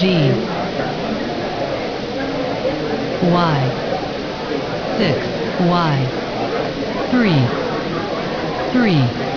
G Y six Y three three